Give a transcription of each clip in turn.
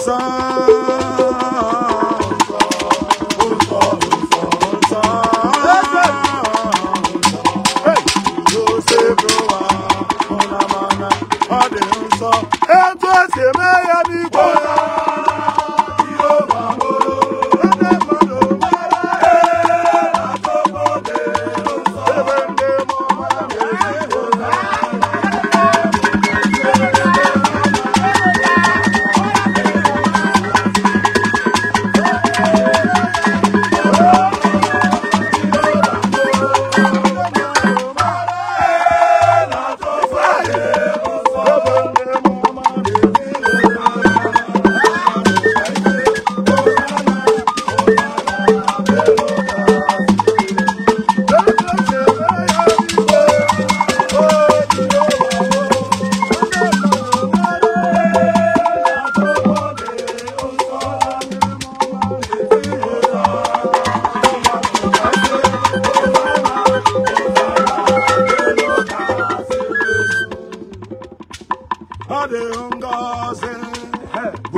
song.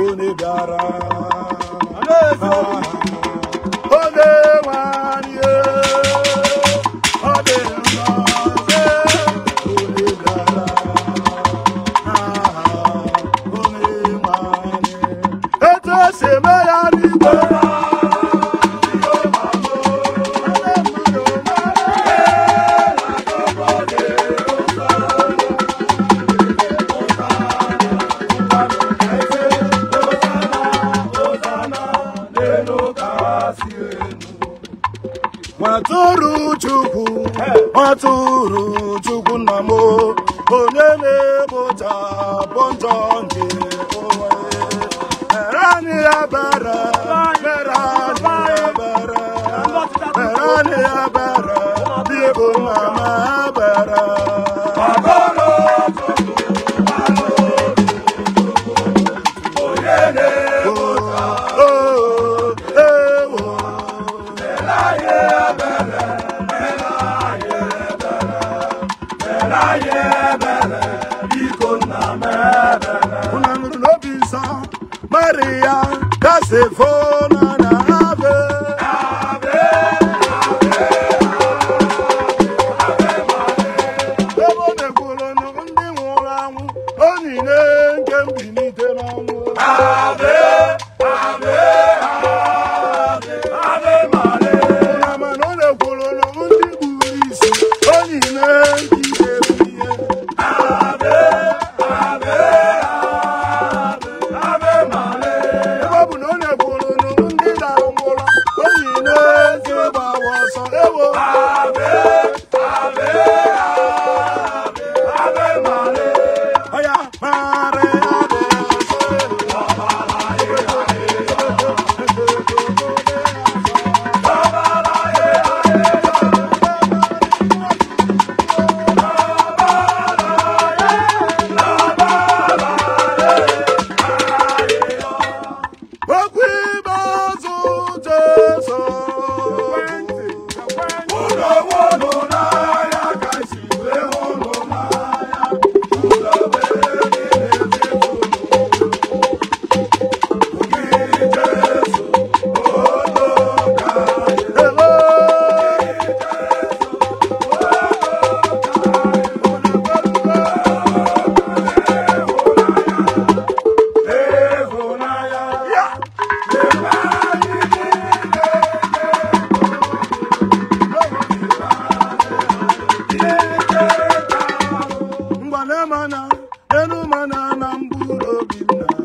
onye bịara ole tụrụ chukwu nna m onye na-egbocha bụ njọ nke C'est faux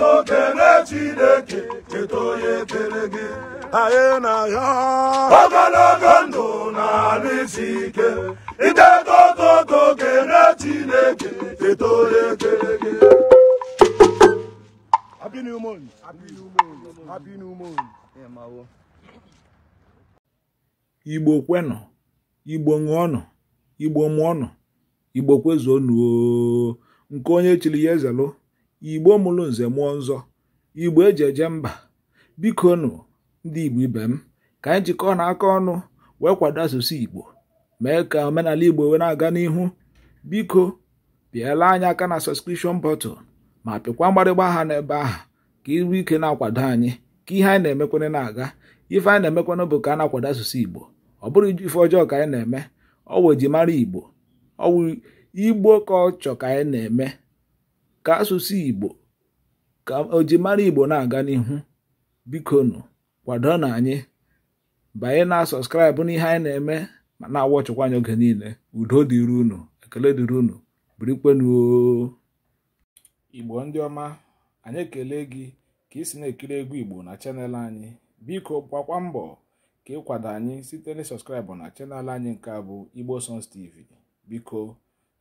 lọta na Chineke keta onye kere gị anyị na ndụ na alụ ike iteta ototo okene Chineke keta onye kere gị Happy new Igbo kwenụ Igbo ṅụọnụ Igbo mụọnụ Igbo nke onye chiri ya ezelụ igbo mụrụ nze mụọ nzọ igbo eji eje mba biko nụ ndị igbo ibe m ka anyị jikọọ na aka ọnụ wee kwado asụsụ igbo mee ka omenala igbo wee na-aga n'ihu biko pịala anyị aka na sọskripshọn bọtụl ma pịkwa mgbarịgba aha n'ebe ahụ ka iru ike na-akwado anyị ka ihe anyị na-emekwana na-aga ife anyị na-emekwana bụ ka a na-akwado asụsụ igbo ọ bụrụ ife ọjọọ ka anyị na-eme ọ wụ mara igbo ọ wụ igbo ka ọ chọ ka anyị na-eme ka asụsụ Igbo ka ojimara Igbo na-aga n'ihu nụ kwado na anyị banye na sọskraịbụ n'ihe anyị na-eme ma na-awọchịkwa anyị oge niile udo dịrị unu ekele dịrị unu birikwenuo Igbo ndị ọma anyị ekele gị ka ị si na-ekiri egwu Igbo na chanel anyị biko gbakwa mbọ ka ịkwado anyị site na sọskraịbụ na chanel anyị nke a bụ Igbo sons TV biko